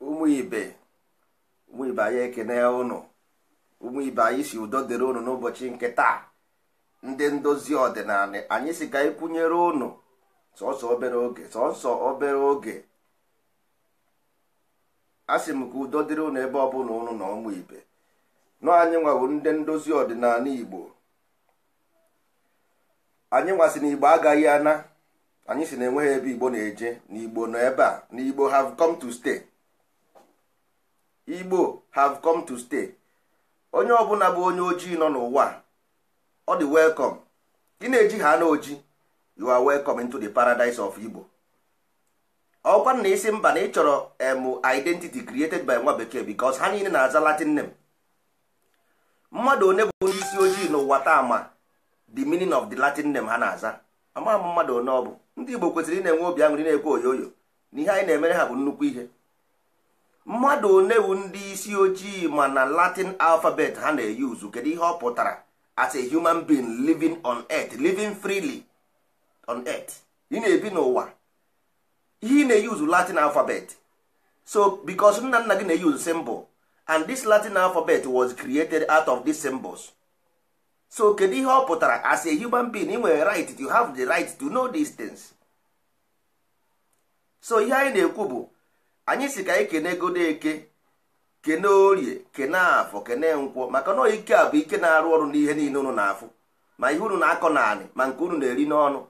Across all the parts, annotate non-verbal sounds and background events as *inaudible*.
ụmụ ibe ụmụ ibe anyị ekene ụnụ ụmụ ibe anyị si udo dịrị ụnụ n'ụbọchị nke taa ndị ndozi ọdịnala anyị si ka ịkwụnyere ụnụ sọsọ obere oge sọsọ obere oge asị m ka udo dịrị ụnụ ebe ọ bụla ụnụ na ụmụ ibe nọ anyị nwawo ndị ndozi ọdịnala igbo anyị nwasị na igbo agaghị ana anyị si na enweghị ebe igbo na-eje na igbo nọ ebe a na igbo have come to stay igbo have come to stay onye ọbụla bụ onye ojii nọ n'ụwa ọ dị welcome gị na-eji ha na oji you are welcome into the paradise of igbo ọkwa na isi mba na ị chọrọ emu identity created by nwa bekee because ha niile na-aza latin name mmadụ onye bụ ndị isi ojii n'ụwa taa ma the meaning of the latin name ha na-aza amagh m mmadụ one ọ bụ ndị igbo kwesịrị ị na-enwe obi aṅụrị na-ekwe oyoyo na ihe anyị na-emere ha bụ nnukwu ihe mmadụ one ndị isi ojii ma na latin alfabet ha na-eyuzu kedu ihe ọ pụtara as a human being living on earth living freely on earth ị na-ebi n'ụwa ihe ị na-eyuzu latin alfabet so because nna nna gị na-eyuzu symbol and this latin alfabet was created out of these symbols so kedu ihe ọ pụtara as a human being ị nwere right to have the right to know these things so ihe anyị na-ekwu bụ anyị si ka anyị kene godeke kene orie kene afọ kene nkwọ maka na ike a bụ ike na-arụ ọrụ n'ihe niile unu na-afụ ma ihe unu na-akọ naanị ma nke unu na-eri n'ọnụ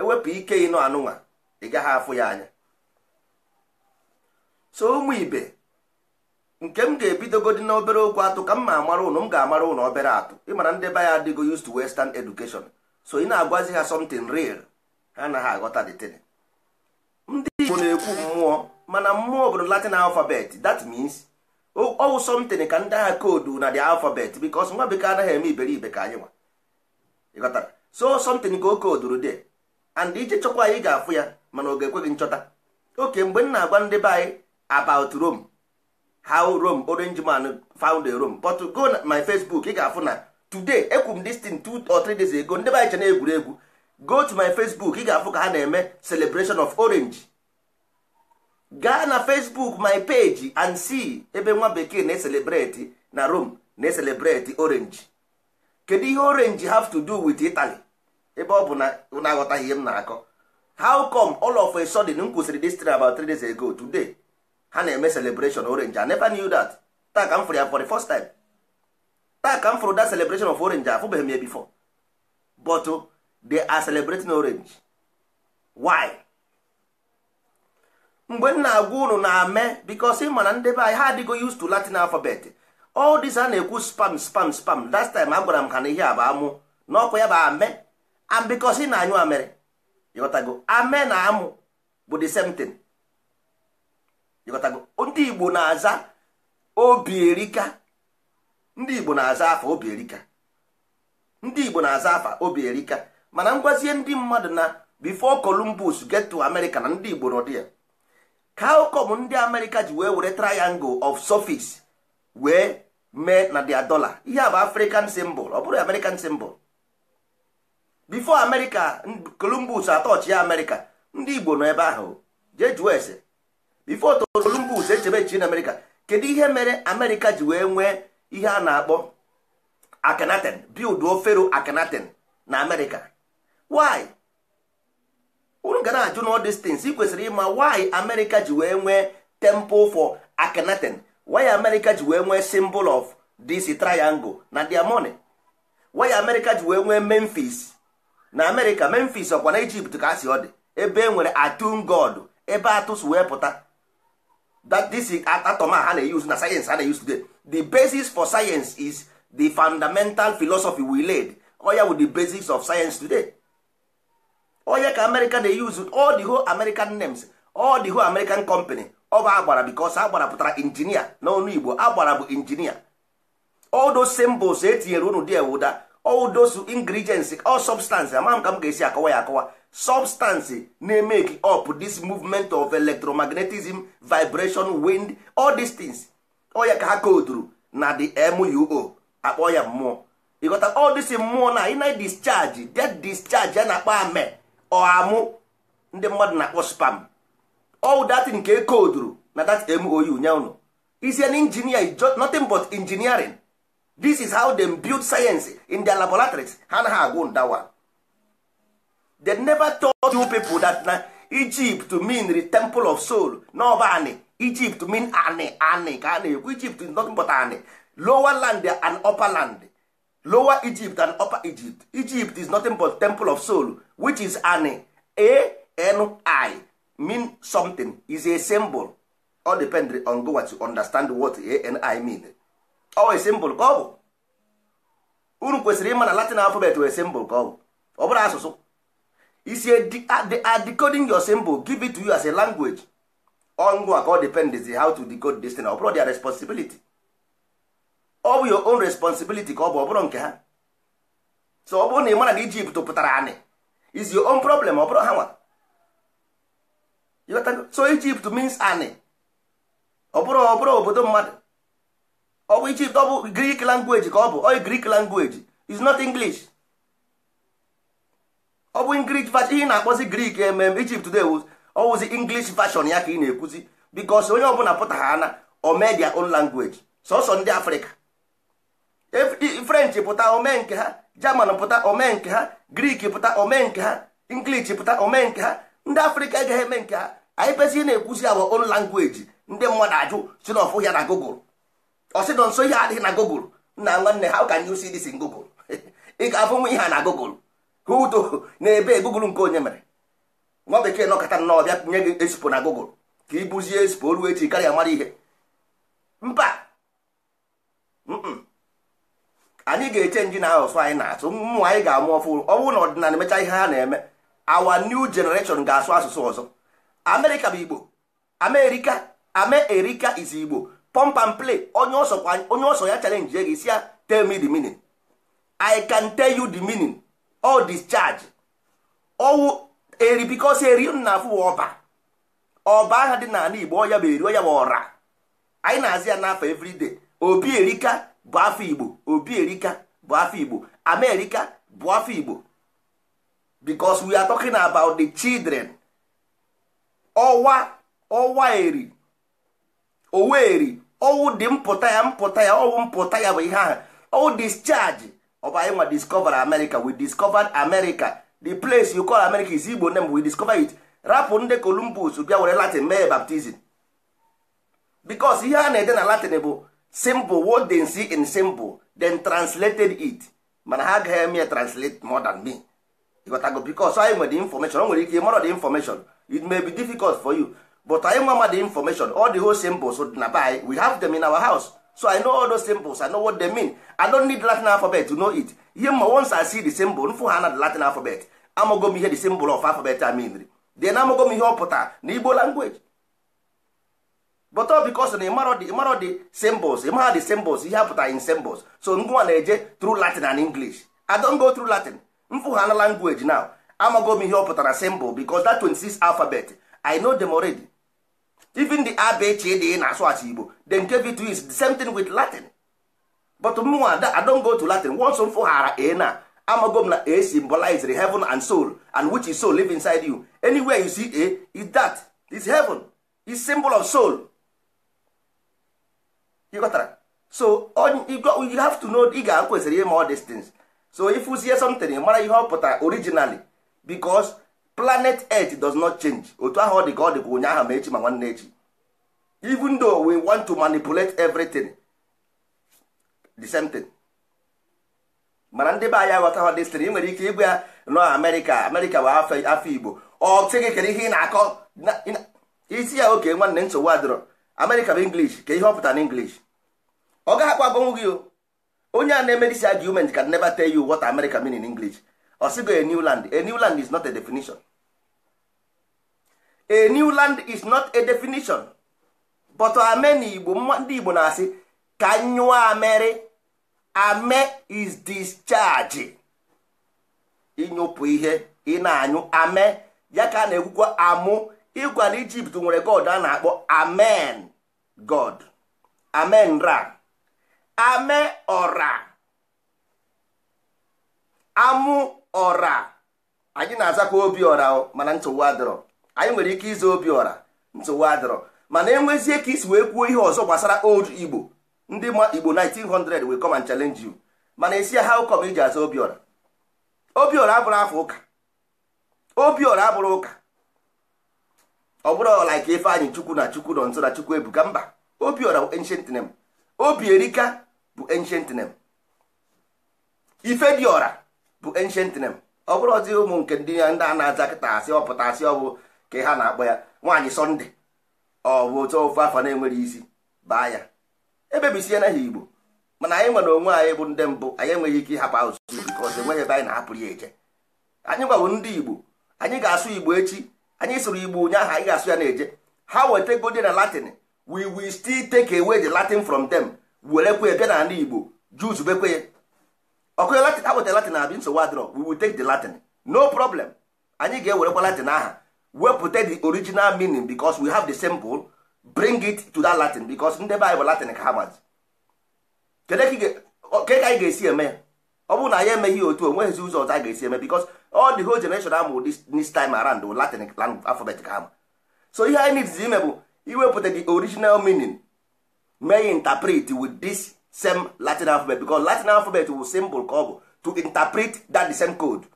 ewepụ ike ịnụ anụnwa ị gaghị afụ ya anya so ụmụ ibe nke m ga-ebidogodi na obere okwu atụ ka m ma amara ụnụ m ga-amara ụnụ obere atụ ịmara ndị be ya adịgo used to western education so ị na-agwazi ha something real ha anaghị aghọta the thing ndị igbo na-ekwu mmụọ mana mmụọ bụ latin alfabet that means ọwụ something ka ndị agha koodu na the alphabet because nwa bekee anaghị eme iberibe ka anyị nwa ịghọtara so something ka o kooduru de and ije chọkwa anyị ga-afụ ya mana ọ ga ekweghị nchọta oke mgbe m na-agwa ndị be anyị about Rome how rome orange man found rome but go na my facebook ị ga-afụ na today ekwu m this thing two or three days ago ndị anyị che egwuregwu go to my facebook ị ga-afụ ka ha na-eme celebration of orange gaa na facebook my page and see ebe nwa bekee na-eselebreti na rome na-eselebreti orange kedu ihe orange have to do with italy ebe ọ bụ na na ihe m na-akọ how come all of a sudden m kwụsịrị this thing about three days ago today ha na-eme celebration orange i never knew that taa ka m fụrụ ya for the first time taa ka m fụrụ that celebration of orange afụbeghị m ya before but oh, they are celebrating orange why mgbe m na-agwa unu na-ame because ị mana ndebe be anyị ha adịgo used to latin alphabet all this a na-ekwu spam spam spam last time agwara m ha na ihe a bụ amụ n'ọkụ ya bụ ame and because ị na-anyụ amere ịghọtago ame na amụ bụ the same thing ịghọtago ndị igbo na-aza obi erika ndị igbo na-aza afa obi erika ndị igbo na-aza afa obi erika mana ngwazie ndị mmadụ na bifo columbus get to america na ndị igbo nọdụ ya ka ndị amerịka ji wee were triangle of surface wee mee na dia dollar ihe a bụ african symbol ọ bụrụ american symbol bifo america columbus atọchi ya america ndị igbo nọ ebe ahụ jee jụọ ese bifo Columbus echebe chi na kedu ihe mere Amerịka ji wee nwee ihe a na-akpọ Akhenaten build Fero Akhenaten na Amerịka why unu ga na-ajụ na ị kwesịrị ịma why Amerịka ji wee nwee temple for Akhenaten why Amerịka ji wee nwee symbol of this triangle na their money why Amerịka ji wee nwee Memphis na Amerịka Memphis ọkwa na ijipt ka a si ọ dị ebe e nwere atun god ebe atụs wee pụta that this atom a ha na-use na sayensị a na-use today the basis for science is the fundamental philosophy we led oya oh, with the basics of science today onye oh, ka america na use all the whole american names all the whole american company ọ oh, bụ agbara because agbara pụtara injinia n'ọnụ igbo agbara bụ injinia all those symbols etinyere unu dị ewuda all those ingredients all substances ama ka m ga-esi akọwa ya akọwa substances na-emeki up this movement of electromagnetism vibration wind all these things ọya ka ha koduru na the muo akpọ ya mmụọ ịghọta all this mmụọ na ịna discharge that discharge ya na-akpọ ame amu ndị mmadụ na-akpọ spam all that nke koduru na that mou nye unu is an engineer nothing but engineering this is how dem build science in their laboratories ha na ha agwụ ndawa they never told you people that na Egypt mean the temple of soul n'ọba anị Egypt mean anị anị ka a na-ekwu Egypt is nothing but anị lower land and upper land lower Egypt and upper Egypt Egypt is nothing but temple of soul which is anị A-N-I mean something is a symbol all depend on go what you understand what A-N-I mean ọ e simbụl ka ọ bụ unu kwesịrị ịma na latin alfabet wee simbụl ka ọ bụ ọ bụrụ asụsụ isi decoding your symbol give it to you as a language ngwa ka ọ depends how to decode this thing ọ bụrụ their responsibility ọ bụ your own responsibility ka ọ bụ ọ bụrụ nke ha so ọ bụrụ na ị mara na Ijipt pụtara anị is your own problem ọ bụrụ ha nwa so Ijipt means anị ọ bụrụ ọ bụrụ obodo mmadụ ọ bụ Ijipt ọ bụ Greek ka ọ bụ oyi oh, grik langweji is not English ọ bụ English version ihe na-akpọzi grik emem Ijipt ọ oh, oh, wụzi English version ya ka ị na-ekwuzi bikos onye ọbụla pụta ha ana o mee their sọsọ ndị Afrịka French pụta ome nke ha German pụta ome nke ha grik pụta omee nke ha English pụta ome nke ha ndị Afrịka agaghị eme nke ha anyị na-ekwuzi awa own ndị mmadụ ajụ si na ya na Google ọsịdọ nọ nso ihe adịghị na gogol nna nwanne ha ụka you see this si gogol *laughs* ị ga-afụ nwa ihe a na gogol hudo na-ebe gogol nke onye mere nwa bekee nọkọta nnọọ bịa nye gị esipo na gogol ka ibuzie esipo ruo echi karịa mara ihe mba anyị ga-eche nji na asụsụ anyị na-asụ mmụ anyị ga-amụ ọfụ ọnwụ na ọdịnala emecha ihe ha na-eme awa new generation ga-asụ asụsụ ọzọ amerịka bụ igbo amerịka ame erika is igbo pump and play onye ọsọ ya challenge gị esi ya tell me the meaning i can tell you the meaning all discharge owu eri bikos eri m na-afụ ọba ọba aha dị n'ala igbo ọya bụ eri ya bụ ọra anyị na-azị ya n'afọ everyday obi erika bụ afọ igbo obi erika bụ afọ igbo amerika bụ afọ igbo because we are talking about the children ọwa ọwa eri eri. owu dị mpụta ya mpụta ya ọwụ mpụta ya bụ ihe ahụ ọwụ discharge ọba anyị nwa discover America we discovered America the place you call America is Igbo name we discover it rapụ ndị Columbus bịa were Latin mee baptizim bicos ihe a na-ede na Latin bụ simple what they see in simple then translated it mana ha agaghị eme translate more than me ịghọtago bicos anyị nwere information o nwere ike ịmarọ the information it may be difficult for you but anyị nwa mmadụ information all the whole symbols na be anyị we have them in our house so i know all those symbols i know what they mean i don't need latin alphabet to know it ihe mma once i see the symbol nfụ ha na the latin alphabet amago m ihe the symbol of alphabet I mean then amago m ihe ọ pụtara na igbo language but all because na ịmarọ the symbols ịmara the symbols ihe apụtara in symbols so ngwa na-eje through latin and english i don't go through latin mfụ ha na language now amago m ihe ọ pụtara symbol because that 26 alphabet i know them already. even the abechi dị e na-asụ asụ igbo the nke to is the same thing with latin but mụnwa I don go to latin once m fụghara a na amago m na a the heaven and soul and which is soul live inside you anywhere you see a is that is heaven is symbol of soul you got so you have to know ị ga-akwesịrị ime all these things so if you see something mara ihe ọ pụtara originally because planet earth does not change otu ahụ ọ dị ka ọ dị ka ụnyaahụ ma echi ma nwanne echi even though we want to manipulate everything the same thing mana ndị be anyị aghọta hụ stri i nwere ike ịgwa ya nọ amerịka amerịka bụ afọ igbo ọ sị gị ihe ị na-akọ isi ya oke nwanne nsogbu adịrọ amerịka bụ english ka ihe ọ pụtara na english ọ gaghị akwa agbanwu gị onye a na emedisi dis argument can never tell you what america mean in english ọ a new land a new land is not a definition a new land is not a definition but ame igbo ndị igbo na-asị ka nyụọ amere ame is discharge ịnyụpụ ihe ị na-anyụ ame ya ka a na-ekwukwa amụ ịgwa na ijipt nwere god a na-akpọ amen god amen ra ame ọra amụ ọra anyị na-azakwa obi ọra mana ntụwa adịrọ anyị nwere ike ịza obi ọra ntụwa adịrọ mana enwezie ka isi wee kwuo ihe ọzọ gbasara old igbo ndị ma igbo 1900 will come and challenge you mana esi ya ụkọ come iji aza obiọra obiọra abụrụ afọ ụka obiọra abụrụ ụka ọ bụrụ ọla ka ife anyị chukwu na chukwu nọ nso na chukwu ebuka mba obiọra bụ ancient name obi erika bụ ancient name ife dị ọra bụ ancient name ọ bụrụ ọdị ụmụ nke ndị ya ndị a na-aza kịta asị ọpụta asị ọ bụ ka ha na-akpọ ya nwaanyị sọnde ọ bụ otu ofe afọ na enweghị isi baa ya ebebisie na ha igbo mana anyị nwere onwe anyị bụ ndị mbụ anyị enweghị ike ịhapụ asụsụ bikọs enweghị ebe anyị na-ahapụrụ ya eje anyị gwawo ndị igbo anyị ga-asụ igbo echi anyị sụrụ igbo ụnyaahụ anyị ga-asụ ya na-eje ha weta wetegodi na latin we will still take away the latin from them werekwe bịa na ala igbo juzubekwe ọkụnye latin ha latin na abi nsogbu adịrọ we will take the latin no problem anyị ga-ewerekwa latin aha wepụta the original meaning because we have the simple bring it to that latin because ndị be anyị bụ latin ka ha mazi ke ka anyị ga-esi eme ọ bụrụ na anyị emeghị otu onweghịzi ụzọ ọzọ a ga-esi eme because all the whole generation amụ this time around bụ latin alphabet ka ha ma so ihe anyị nitizi ime bụ iwepụta the original meaning mee interpret with this same latin alphabet because latin alphabet wu symbol ka ọ bụ to interpret that the same code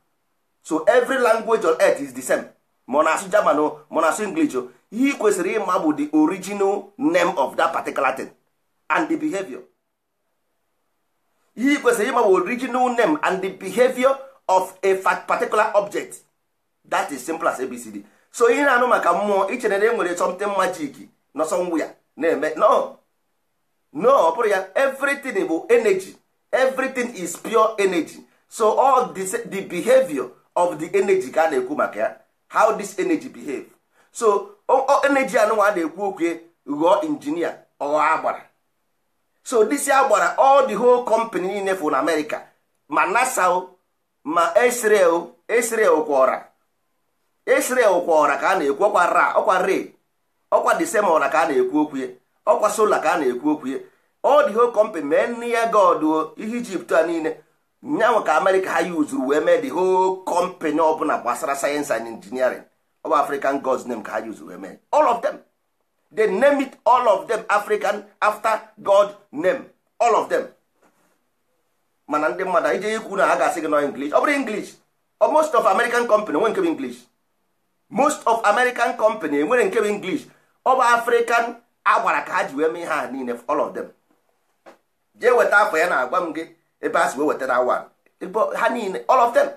so every language on earth is the same monasu asụ german o monasu asụ english o ihe ị kwesịrị ịma bụ the original name of that particular thing and the behavior ihe ị kwesịrị ịma bụ original name and the behavior of a particular object that is simple as abcd so ihe na-anụ maka mmụọ ichere na e nwere something magic na somewhere na-eme no no ọ bụrụ ya everything bụ energy everything is pure energy so all this, the behavior of the energy ka a na-ekwu maka ya how this energy behave so energy anụnwa a na-ekwu okwu ghọọ injinia ọghọ agbara so this agbara all the whole company niile fụ na America ma NASA ma Israel Israel kwọra Israel kwọra ka a na-ekwu ọkwa ra ọkwa re ọkwa the ka a na-ekwu okwu ọkwa sola ka a na-ekwu okwu ya ọ dị whole company mee nne ya god ihe ijipt a niile nyanwa ka amerịka ha yi wee mee the whole company na gbasara sayensị and engineering bụ african gods name ka ha yi wee mee all of them they name it all of them african after god name all of them mana ndị mmadụ anyị jee ikwu na ha ga-asị gị nọ english ọ bụrụ english most of american company enwere nke bụ english most of american company enwere nke bụ english ọ bụ african a gwara ka ha ji wee mee ha niile all of them jee weta afọ ya na-agwa m gị ebe a si wee wetara awa ha niile all of them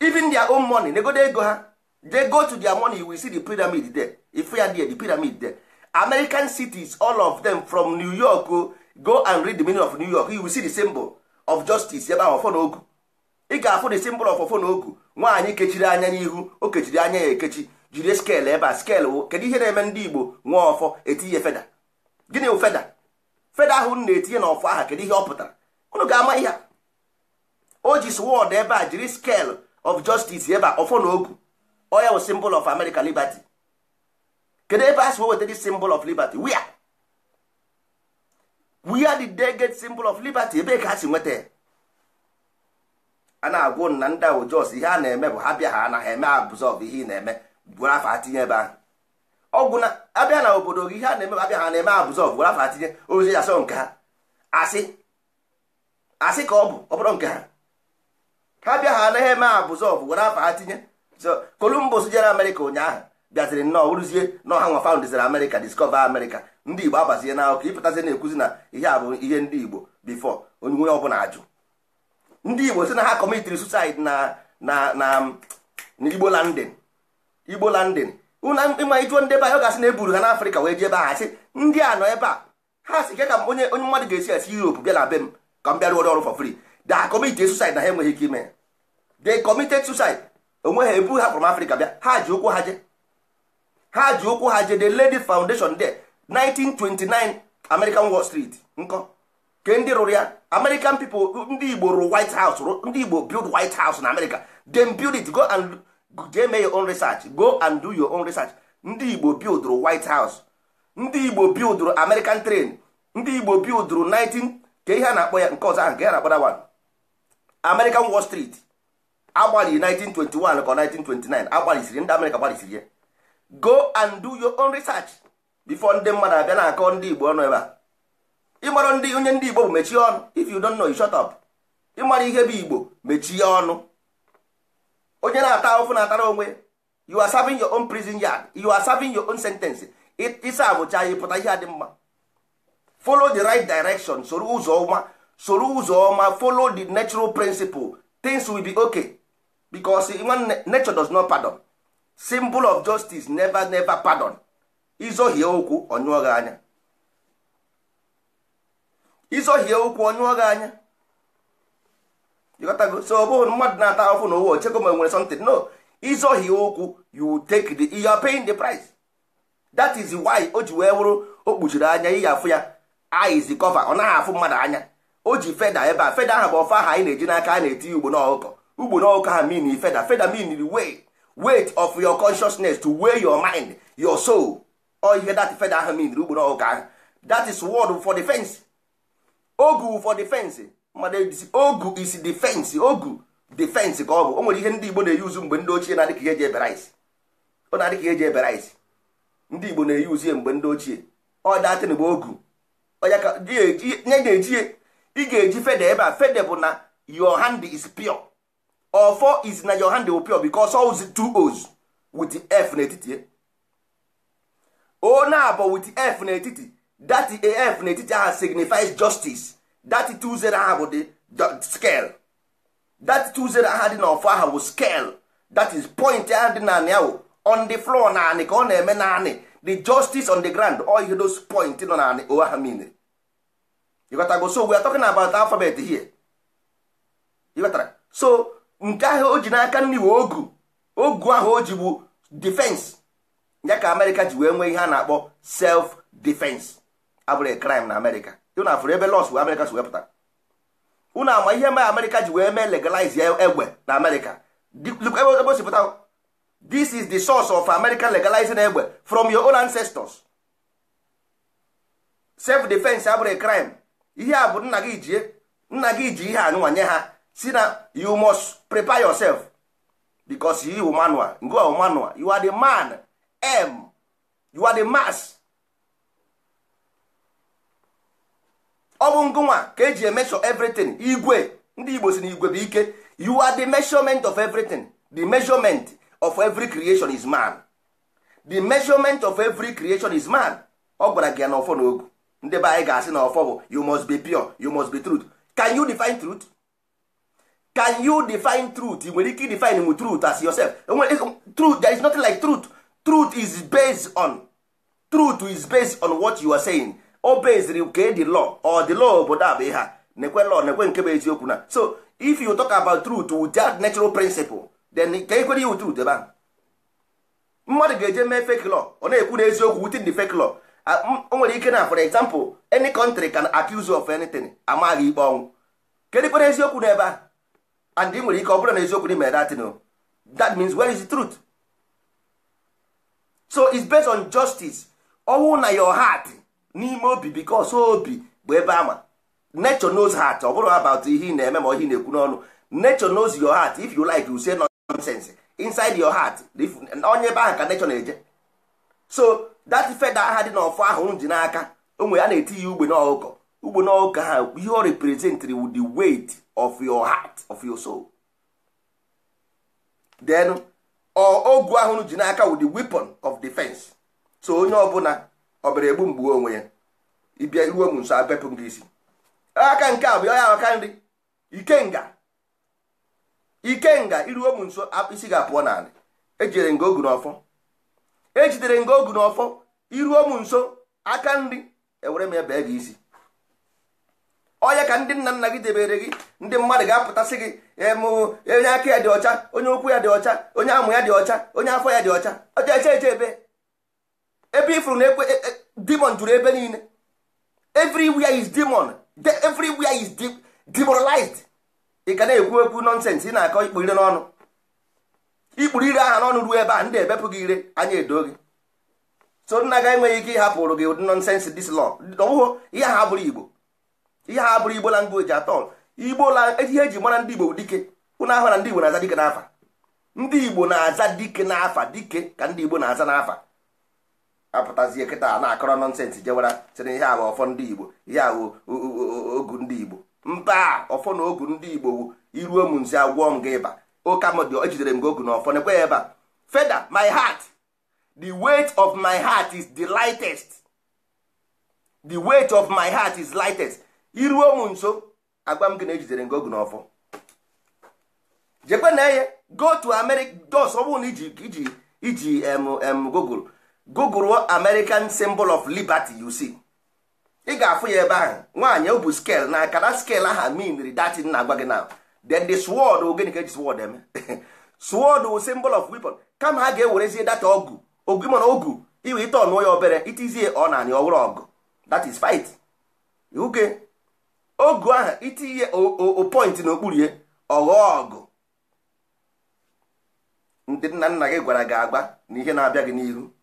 even their own money negode ego ha they go to their money will see the pyramid there ifu ya there the pyramid there american cities all of them from new york oh, go and read the meaning of new york you will see the symbol of justice ebe ahụ ọfọ ogu ị ga-afụ the symbol of ọfọ ogu nwaanyị kechiri anya n'ihu o kechiri anya ya ekechi jiri skeelụ ebe a skeelụ wo kedu ihe na-eme ndị igbo nwa ọfọ etinye feda gịnị wụ feda feda ahụ na-etinye n'ọfọ aha kedu ihe ọ pụtara unu ga-ama ihe o ji swọd ebe a jiri skeelụ of justice ebe a ọfọ na ogu oya wụ simbol of america liberty kedu ebe a si weweta dị symbol of liberty wia wia did de get simbol of liberty ebee ka ha si nweta ya a na-agwụ na ndị ahụ jos ihe a na-eme bụ ha bịa ha anaghị eme absorb ihe ị na-eme gwara afa atinye ebe ahụ ọgwụ na abịa na obodo gị ihe a na-eme abịa ha na-eme abụzọ gwara afa atinye ozi ya sọ nke ha asị asị ka ọ bụ ọ bụrụ nke ha ha bịa ha anaghị eme abụzọ gwara afa atinye so Columbus jere Amerịka ụnyaahụ bịaziri nnọọ bụrụzie na ha nwa faundeziri Amerịka discover Amerịka ndị Igbo agbazie na akụkọ ịpụtazi na-ekwuzi na ihe a bụ ihe ndị Igbo bifọ onye onye ọbụla ajụ ndị Igbo si na ha kọmitiri susaid na na na um, Igbo landin igbo landin ịma ijuo ndị ebe a ọ ga-asị na eburu ha n'afrịka wee jee ebe a sị ndị a nọ ebe a ha si ike ka onye onye mmadụ ga-esi esi europe bịa na be m ka m bịa ọrụ for free da committed suicide na ha enweghị ike ime ya de committed suicide onwe ha ebu ha from africa bịa ha ji ụkwụ ha je ha ji ụkwụ ha je the lady foundation there 1929 american wall street nkọ ke ndị rụrụ ya american people ndị igbo rụrụ white house ndị igbo build white house na america dem build it go and your own research go and do your own research ndị igbo bildụrụ white house ndị igbo bildụrụ american train ndị igbo bildụrụ 19 ka ihe a na-akpọ ya nke ọzọ ahụ ka ihe na-akpọ wan american wall street agbalị 1921 ka 1929 agbalịsiri ndị amerịka gbalịsiri ya go and do your own research before ndị mmadụ abịa na-akọ ndị igbo ọnụ ebe a ịmara ndị onye ndị igbo bụ mechie ọnụ if you don't know you shut up ịmara ihe bụ igbo mechie ọnụ onye na-ata ahụhụ na-atara onwe you are serving your own prison yard you are serving your own sentence ịsa abụcha ya pụta ihe a mma follow the right direction soro ụzọ ọma soro ụzọ ọma follow the natural principle things will be okay because nwanne nature does not pardon symbol of justice never never pardon izohie okwu onyụọ gị anya anya ịghọtago so ọ bụghị mmadụ na-ata ahụhụ na ụwa ochego ma nwere something no ịzọghị ụkwụ you take the you are paying the price that is why o ji wee wụrụ o kpuchiri anya ihe afụ ya eyes cover ọ naghị afụ mmadụ anya o ji feda ebe a feda ahụ bụ ọfa ahụ anyị na-eji n'aka a na-eti ya ugbo n'ọkụkọ ugbo n'ọkụkọ ha mean feda feda mean way weight of your consciousness to weigh your mind your soul o ihe that feda ahụ mean ugbo n'ọkụkọ ahụ that is word for defense ogu for defense mmadụ ejisi ogu isi defense ogu defense ka ọ bụ o nwere ihe ndị igbo na-eyuzu mgbe ndị ochie na-adị ka eji ebere isi ọ na-adị ka eji ebere isi ndị igbo na-eyuzu ya mgbe ndị ochie ọ datịn bụ ogu onye ga-eji ị ga-eji fede ebe a fede bụ na your hand is pure ọfọ is na your hand bụ pure because oz two oz with f n'etiti o na-abụ with f n'etiti that f n'etiti ahụ signifies justice that two zero aha bụ dị scale that two zero aha dị n'ọfọ aha bụ scale that is point ahụ dị naanị ahụ on the floor naanị ka ọ na-eme naanị the justice on the ground all ihe those point nọ naanị o aha mean ịghọtago so we are talking about alphabet here ịghọtara so nke ahụ o ji n'aka nri wee ogu ogu ahụ o ji bụ defense ya ka amerịka ji wee nwee ihe a na-akpọ self defense abụrụ crime na amerịka na afụrụ ebe lọs wee amerịka si wepụta unu ama ihe ma amerịka ji wee mee legalize egbe na amerịka ebe o si pụta this is the source of american legalizing egbe from your own ancestors self defense abụrụ a crime ihe a bụ nna gị jie nna gị ji ihe anụnwa nye ha si na you must prepare yourself because you manual you are manual you are the man m you are the mass ọ bụ ngụnwa ka eji emesho everything igwe ndị igbo si na igwe bụ ike you are the measurement of everything the measurement of every creation is man the measurement of every creation is man ọ gwara gị ya na ọfọ na ogu ndị be anyị ga-asị na ọfọ bụ you must be pure you must be truth can you define truth can you define truth ị nwere ike define m truth as yourself truth there is nothing like truth truth is based on truth is based on what you are saying o beziri ka edi law ọ dị law obodo a bụ nekwe lọ, nekwe nke bụ eziokwu na so if you talk about truth with that natural principle then ka ekwere iwu truth ebe ahụ mmadụ ga-eje mee fake law ọ na-ekwu na eziokwu within the fake law o nwere ike na for example any country can accuse you of anything amaghị ikpe ọnwụ kedu kwere eziokwu n'ebe a and ị nwere ike ọ bụrụ na eziokwu dị mere datin that means where is the truth so it's based on justice ọnwụ na your heart n'ime obi because obi bụ ebe ama nature knows heart ọ bụrụ about ihe ị na-eme ma ọ ihe na-ekwu n'ọnụ nature knows your heart if you like you say nonsense inside your heart onye ebe ahụ ka nature na-eje so that feather aha dị n'ọfọ ahụ m ji n'aka onwe ya na-eti ya ugbe n'ọkụkọ ugbe n'ọkụkọ ha ihe ọ representri with the weight of your heart of your soul then ogu ahụ ji n'aka with the weapon of defense so onye ọbụla ọ bịara egbu mgbu onwe ya ịbịa iruo m nso abepụ m gị isi aka nke a bụ ya aka nri ikenga ikenga iruo m nso isi ga-apụọ n'ala ejidere nga ogu n'ọfọ ejidere nga ogu n'ọfọ iruo m nso aka nri ewere m bee gị isi onye ka ndị nna nna gị debere gị ndị mmadụ ga-apụtasị gị onye aka ya dị ọcha onye ụkwụ ya dị ọcha onye amụ ya dị ọcha onye afọ ya dị ọcha ọcha eche eche ebe ebe ifuru na ekwe e, e, demon juru ebe niile everywhere is demon everywhere is demoralized ị ga na-ekwu okwu nọnsensị ị na-akọ ikpu ire n'ọnụ ikpuru ire aha n'ọnụ ruo ebe a ndị ebepụ gị ire anya edo gị so nna ga enweghị ike ịhapụrụ gị ụdị nọnsensị dis lọ ọwụhụ ihe ha abụrụ igbo ihe ha abụrụ igbo langoji atọ igbo la ihe eji mara ndị igbo bụ dike ụnụ ahụ na ndị igbo na-aza dike n'afa ndị igbo na-aza dike n'afa dike ka ndị igbo na-aza n'afa apụtazie kịta na-akọrọ nọnsensị jewara sịrị ihe a bụ ọfọ ndị igbo ihe a bụ ogu ndị igbo mba ọfọ na ogu ndị igbo wu iruo m nsi agwọ m gị ịba oke amụdị ejidere m gị ogu na ọfọ nekwe ya ebe a feda my heart the weight of my heart is the lightest the weight of my heart is lightest iruo m nso agwa m gị na ejidere gị ogu na ọfọ jekwe na eye go to america dos ọ bụrụ na iji iji iji google google american symbol of liberty you see ị ga-afụ ya ebe ahụ nwaanyị o bụ scale na akara scale aha minri datin na-agwa gị na then the sword ogene ka eji sword eme *laughs* sword wụ symbol of weapon kama ha ga-ewerezie data ọgụ ogu mana ogu iwe ite ọnụọ ya obere itizie ọ na anị ọwụrụ ọgụ that is fight uke ogu ahụ itinye o point n'okpuru ya ọghọọ ọgụ ndị nna nna gị gwara gị agba na ihe na-abịa gị n'ihu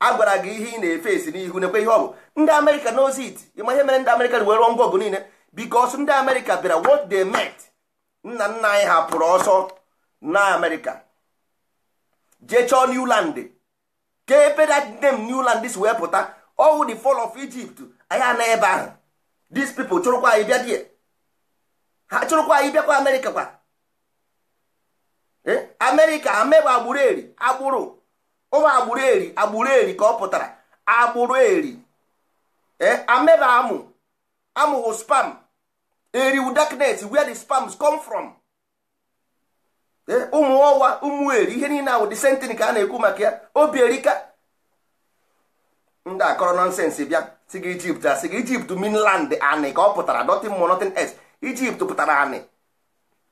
a gwara gị ihe ị na-efe esi n'ihu nekwe ihe ọ bụ ndị amerịka knows it ịma ihe mere ndị amerịka were ngwa ọgụ niile bikos ndị amerịka bịara what they met nna nna anyị hapụrụ ọsọ na amerịka jee chọọ new land ka ebe that name new land si wee pụta ọwụ the fall of egypt anyị ana ebe ahụ these people chụrụkwa anyị bịa die ha chụrụkwa anyị bịakwa amerịka kwa eh? amerịka amebe agbụrụ eri agbụrụ ụmụ agbụrụ eri agbụrụ eri ka ọ pụtara agbụrụ eri eh, ameba amụ amụwụ spam eriwu darknet where the spams come from eh, ụmụ ọwa ụmụ eri ihe niile ahụ disentini ka a na-ekwu maka ya obi erika ndị akọrọ nọnsensị bịa si gị ijipt asị gị ijipt minland anị ka ọ pụtara nothing more nothing else ijipt pụtara anị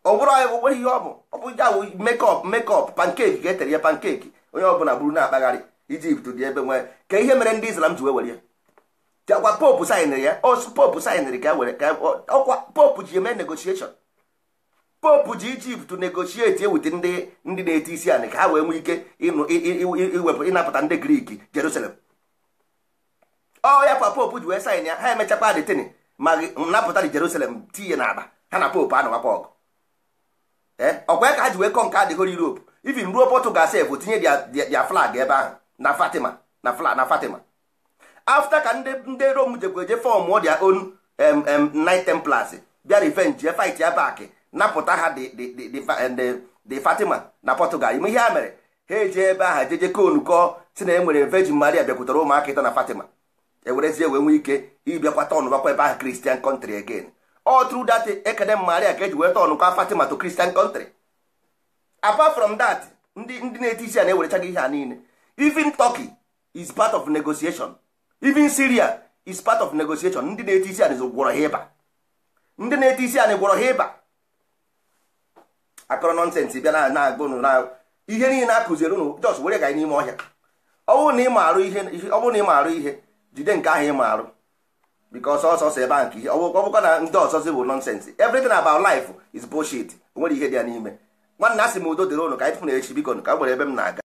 ọ bụrụ ihe ọ bụ ọ bụ ya bụ mekọp mekọp pankeki ga-etere ya pankeki onye ọbụla bụrụ na-akpagharị ijipt dị ebe nwee ka ihe mere ndị islam ji wee were ya akwa popu sainịrị ya ọsụ popu sainịrị ka e were ka ọkwa e, popu ji eme negotiation popu ji ijipt negoshieti ewute ndị ndị na-eti isi anị ka ha wee nwee ike iwepụ ịnapụta ndị griki jerusalem ọ ya kwa popu ji wee sain ya ha emechakwa detin ma napụta dị jerusalem tinye n'akpa ha na popu anọwakwa ọgụ eh, ọkwa ya ka ha ji wee kọ nke adịghị europe even ruo Portugal sef tinye dia flag ebe ahụ na Fatima na flag na Fatima afta ka ndị rom jekwa eje fọm dia on Knight Templars bịa revenge ya fight ya back napụta ha the Fatima na Portugal ime ihe a mere ha eji ebe ahụ jeje konukọ si na enwere Virgin Maria bịakwutara ụmụaka ịtọ na Fatima ewerezie wee nwee ike ịbịakwa tọn bakwa ebe ahụ Christian country again all through that ekene Maria ka eji wee tọnụkwa Fatima to Christian country apart from that ndị ndị na-eti isi a na-ewerecha ihe a niile even Turkey is part of negotiation even Syria is part of negotiation ndị na-eti isi a gwọrọ ha ịba ndị na-eti isi anyị gwọrọ ha ịba akọrọ nọnsensị bịa na agba ụnụ na ihe niile akụziri ụnụ jos were ga n'ime ọhịa ọ bụrụ na ị marụ ihe jide nke ahụ ị marụ bikos ọsọsọ ebe a nke ihe ọ bụkwa na ndị ọsọ ọzọzi bụ nọnsensị everything about life is bullshit o nwere ihe dị ya n'ime nwanna asị m udo dịrị ụnụ ka anyị tụfụ na echi biko ka m nwere ebe m na-aga